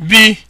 bi